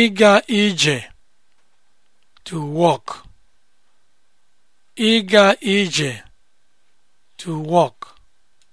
ịga ije to walk ịga ije to walk